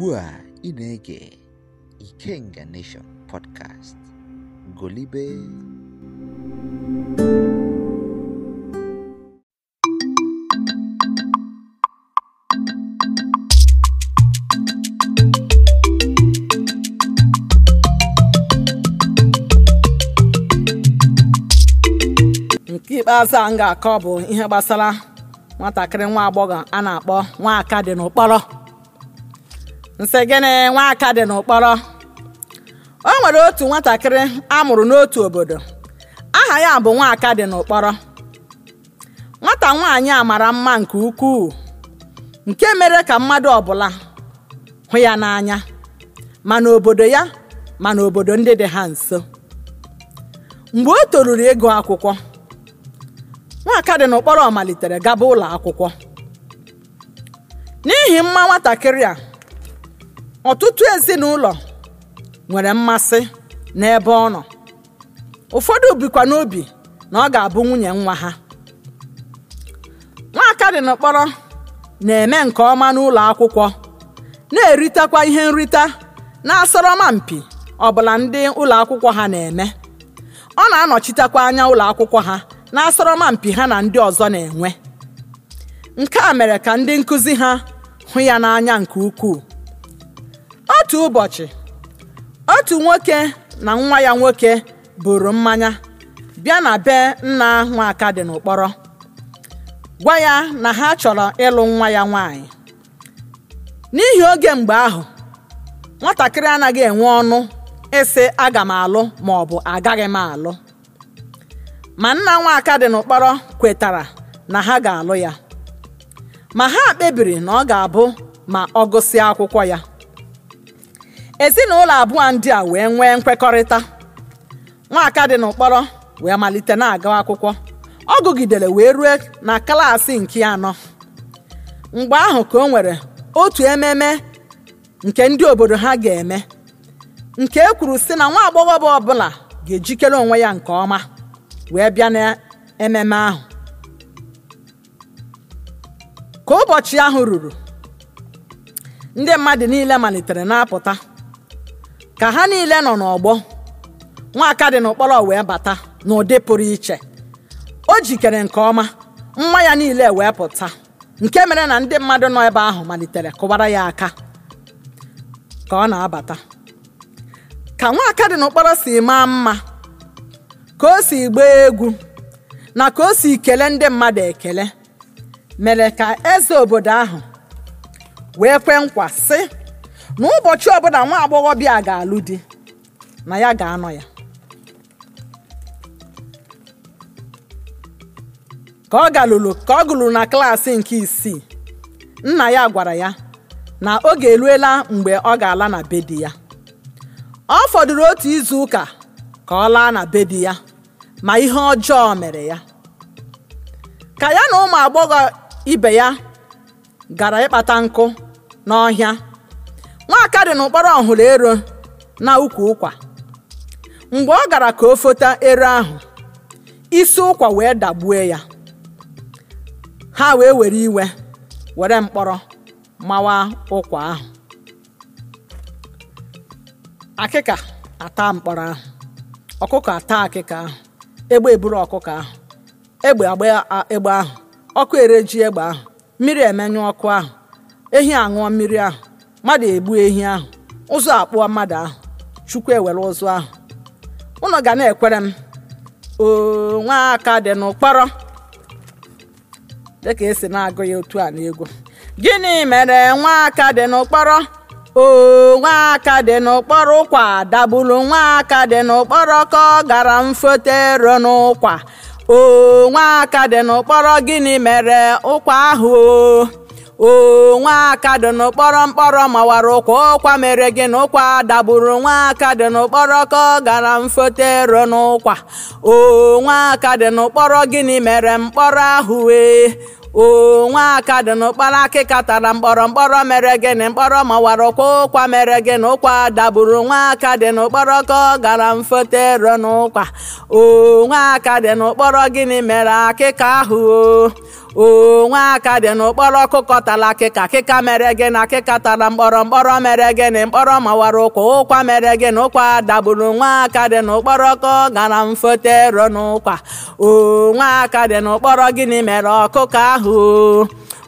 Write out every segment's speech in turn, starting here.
ugbu a ị na-ege Ikenga Nation podcast golibe nke ikpeazụ a m ga-akọ bụ ihe gbasara nwatakịrị nwa agbọghọ a na-akpọ nwa aka dị n'ụkpọrọ nsị gịnị aka dị n'ụkpọrọ o nwere otu nwatakịrị amụrụ n'otu obodo aha ya bụ aka dị n'ụkpọrọ nwata nwaanyị a mara mma nke ukwuu nke mere ka mmadụ ọbụla hụ ya n'anya ma n'obodo ya ma n'obodo ndị dị ha nso mgbe o toruru ego akwụkwọ nwaka dị n'ụkpọrọ malitere gaba ụlọ akwụkwọ n'ihi mma nwatakịrị a ọtụtụ ezinụlọ nwere mmasị n'ebe ọ nọ ụfọdụ bikwa n'obi na ọ ga-abụ nwunye nwa ha Nwa dị n'okpọrọ na-eme nke ọma n'ụlọ akwụkwọ na-eritekwa ihe nrita na-asọrọma mpi ọbụla ndị ụlọ akwụkwọ ha na-eme ọ na-anọchitekwa anya ụlọ akwụkwọ ha na-asọrọma mpi ha na ndị ọzọ na-enwe nke a mere ka ndị nkụzi ha hụ ya n'anya nke ukwuu otu ụbọchị otu nwoke na nwa ya nwoke bụrụ mmanya bịa na be nna nwaka dị n'ụkpọrọ gwa ya na ha chọrọ ịlụ nwa ya nwaanyị n'ihi oge mgbe ahụ nwatakịrị anaghị enwe ọnụ ịsị aga m alụ ma ọ bụ agaghị m alụ ma nna nwaka dị n'ụkpọrọ kwetara na ha ga-alụ ya ma ha kpebiri na ọ ga-abụ ma ọ gụsịa akwụkwọ ya ezinụlọ abụọ ndị a wee nwee nkwekọrịta nwaka dị n'ụkpọrọ wee malite na-agawa akwụkwọ ọ gụgidere wee rue na klaasị nke anọ mgbe ahụ ka o nwere otu ememe nke ndị obodo ha ga-eme nke e kwuru sị na nwa agbọghọ ọ ọbụla ga-ejikere onwe ya nke ọma wee bịa n'ememe ahụ ka ụbọchị ahụ ruru ndị mmadụ niile malitere na-apụta ka ha niile nọ n'ọgbọ nwaka dị n'ụkpọrọ wee bata n'ụdị pụrụ iche o jikere nke ọma nwa ya niile wee pụta nke mere na ndị mmadụ nọ ebe ahụ malitere kụwara ya aka ka ọ na-abata ka nwaka dị n'ụkpọrọ si maa mma ka o si gbaa egwu na ka o si kele ndị mmadụ ekele mere ka eze obodo ahụ wee kwee nkwa sị na ụbọchị ọbụla nwa agbọghọbịa ga-alụ di na ya ga-anọ ya ka ọ galụlụ ka ọ gụlụrụ na klaasị nke isii nna ya gwara ya na oge eruela mgbe ọ ga-ala na be di ya ọ fọdụrụ otu izu ụka ka ọ laa na be di ya ma ihe ọjọọ mere ya ka ya na ụmụ agbọghọ ibe ya gara ịkpata nkụ n'ọhịa nwaka dị n'ụkpọrọ ọhụrụ ero na ukwu ụkwa mgbe ọ gara ka o fota ero ahụ isi ụkwa wee dagbue ya ha wee were iwe were mkpọrọ mawa ụkwa ahụ akịka ata mkpọrọ ahụ ọkụkọ ata akịka ahụ egbe eburu ọkụkọ ahụ egbe agba egbe ahụ ọkụ ere ji egbe ahụ mmiri emenyu ọkụ ahụ ehi aṅụọ mmiri ahụ mmadụ egbu ehi ahụ ụzọ akpụọ mmadụ ahụ chukwu ewere ụzọ ahụ ụnụ ga na-ekwere m oo nwa aka dị n'ụkpọrọ dịka esi na-agụ ya otu a n'egwu gịnị mere nwa aka dị n'ụkpọrọ oo nwa aka dị n'ụkpọrọ ụkwa dagburu nwa aka dị n'ụkpọrọ ka ọ gara mfotero n'ụkwa oo nwa aka dị n'ụkpọrọ gịnị mere ụkwa ahụ o oo nwaaka dị n'ụkpọrọ mkpọrọ mawara ụkwa ụkwa mere gị na ụkwa dagburu nwaaka dị n'ụkpọrọ ka ọ gara mfotero n'ụkwa oo nwaaka dị n'ụkpọrọ gịnị mere mkpọrọ ahụ wee oo nwaaka dị n'ụkpọrọ akịka tara mkpọrọ mkpọrọ mere gị gịnị mkpọrọ mawara ụkwa ụkwa mere gị na ụkwa dagburu nwaaka dị n'ụkpọrọ ka ọ gara mfotero n'ụkwa oo nwaaka dị n'ụkpọrọ gịnị mere akịka ahụ oo oo nwa aka dị n'ụkpọrọ ọkụkọ tala akịka akịka mere gị na akịka tara mkpọrọ mkpọrọ mere gị na mkpọrọ mawara ụkwa ụkwa mere gị na ụkwa dagburu nwa aka dị n'ụkpọrọ ọkụ gara mfotero n'ụkwa oo nwa aka dị n'ụkpọrọ gịnị mere ọkụkọ ahụ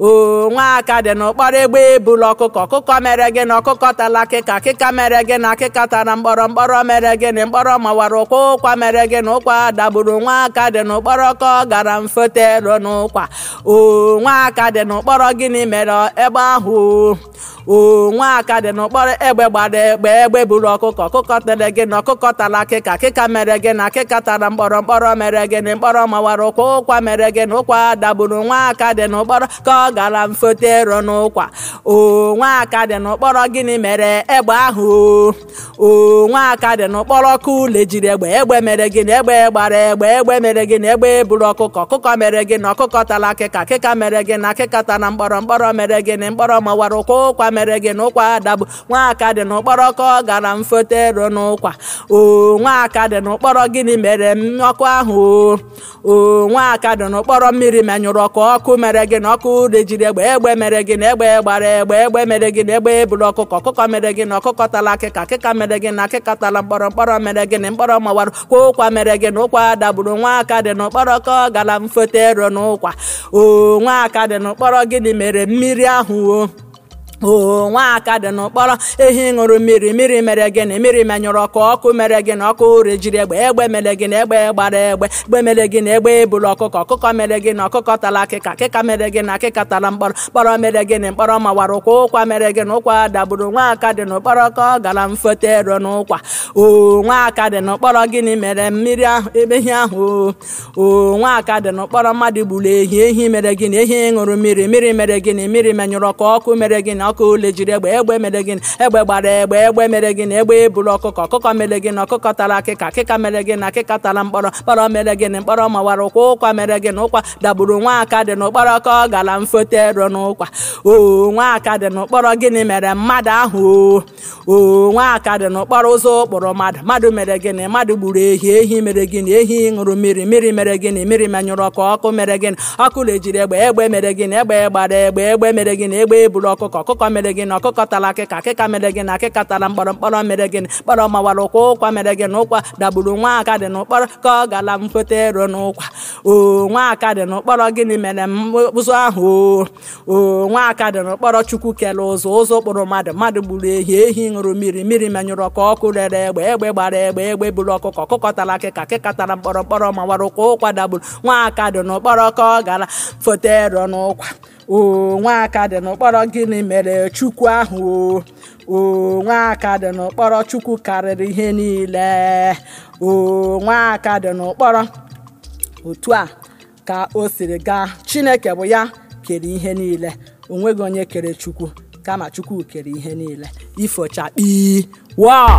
oo aka dị n'ụkpọrọ egbe ebula ọkụkọ ọkụkọ mere gị na ọkụkọ tala akịka akịka mere gị na akịka tara mkpọrọ mkpọrọ mere gị na mkpọrọ mawara ụkwa ụkwa mere gị na ụkwa dagburu aka dị n'ụkpọrọ ka ọ gara mfotero n'ụkwa oo aka dị n'ụkpọrọ gịnị mere egbe ahụ oo aka dị n'ụkpọrọ egbe gbara egbe egbe buru ọkụkọ ọkụkọ tere gị na ọkụkọ tara akịka akịka mere gị na akịka tara mkpọrọ mkpọrọ mere gị na mkpọrọ mawara ụkwa ụkwa mere gị na ụkwa dagburu nwaaka dị n'ụkpọrọ ọ gara m foto ero n'ụkwa dị n'ụkpọrọ gịnị mere egbe ahụ o nwaaka dị n'ụkpọrọ ka ule jiri egbe egbe mere gịnị egbe gbara egbe egbe mere gịnị egbe buru ọkụkọ ọkụkọ mere gịnị ọkụkọ tara akịka akịka mere gịnị akịka tara mkpọrọ mkpọrọ mere gịnị mkpọrọ mawara ụkwa ụkwa mere gịnị ụkwa adabụ nwaaka dị n'ụkpọrọ ka ọ gara m foto ero n'ụkwa o nwaaka dị n'ụkpọrọ gịnị mere ọkụ ahụ o nwaaka dị n'ụkpọrọ mmiri menyụrụ ọkụ ọkụ mere gịnị ọkụ e jiri egbe egbe mere gị na egbe gbara egbe egbe mere gị na egbe eburu ọkụkọ ọkụkọ mere gị na ọkụkọ tala akịka akịka mere gị na akịka tala mkpọrọ mkpọrọ mere gị na mkpọrọ mawara kwa ụkwa mere gị na ụkwa dagburu nwa aka dị na ụkpọrọ ka gara mfote ero na ụkwa o nwa aka dị na ụkpọrọ gịnị mere mmiri ahụ o oo nwaaka dị n'ụkpọrọ ehi ṅụrụ mmiri mmiri mere gị na mmiri menyụrụ ọkụ ọkụ mere gị na ọkụ ụre jiri egbe egbe mere gị na egbe gbara egbe egbe mere gị na egbe ebulu ọkụkọ ọkụkọ mere gị na ọkụkọ tara akịka akịka mere gị na akịka tara mkpọrọ mkpọrọ mere gị na mkpọrọ mawara ụkwa ụkwa mere gị na ụkwa dagburu nwaaka dị n'ụkpọrọ ka ọ gara mfote ero n'ụkwa oo nwaaka dị n'ụkpọrọ gịnị mere mmiri ahụ ehi ahụ oo nwaaka dị n'ụkpọrọ mmadụ gburu ehi ehi mere gị na ehi ṅụrụ mmiri mmiri mere gị na mmiri menyụrụ ọkụ ọkụ mere gị na Ọkụ ule jiri egbe egbe mere gịnị egbe gbara egbe egbe mere gịnị egbe eburu ọkụkọ ọkụkọ mere gịnị ọkụkọ tara akịka akịka mere gịnị akịka tara mkpọrọ mkpọrọ mere gịnị mkpọrọ mawara ụkwa ụkwa mere gịnị ụkwa dagburu nwa aka dị n'ụkpọrọ ka ọ gara mfotero n'ụkwa O nwa aka dị n'ụkpọrọ gịnị mere mmadụ ahụ o nwa aka dị n'ụkpọrọ ụzọ ụkpụrụ mmadụ mmadụ mere gịnị mmadụ gburu ehi ehi mere gịnị ehi ṅụrụ mmiri mmiri mere gịnị mmiri menyụrụ ọkụ ọkụ mere gịnị ọkụ lejiri egbe egbe mere na egbe gbara egbe egbe mere na egbe eburu ọkụkọ ọkụkọ ọkụkọ mere gị na ọkụkọ akịka akịka mere gị na akịka tara mkpọrọ mkpọrọ mere gị mkpọrọ mawara ụkwa ụkwa mere gị na ụkwa dagburu nwa aka dị n'ụkpọrọ ka ọ gara mkpụta ero n'ụkwa o nwa aka dị n'ụkpọrọ gịnị mere ụzọ ahụ o nwa aka dị n'ụkpọrọ chukwu kere ụzọ ụzọ kpụrụ mmadụ mmadụ gburu ehi ehi ṅụrụ mmiri mmiri menyụrụ ọkụ ọkụ rere egbe egbe gbara egbe egbe buru ọkụkọ ọkụkọ tara akịka akịka tara mkpọrọ mkpọrọ mawara ụkwa ụkwa dagburu nwa aka dị n'ụkpọrọ ka ọ gara foto ero n'ụkwa o nwaka dị n'ụkpọrọ gịnị mere chukwu ahụ o aka dị n'ụkpọrọ chukwu karịrị ihe niile o aka dị n'ụkpọrọ otu a ka o siri gaa chineke bụ ya kere ihe niile o nweghị onye kere chukwu kama chukwu kere ihe niile ifochakpi wa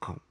com.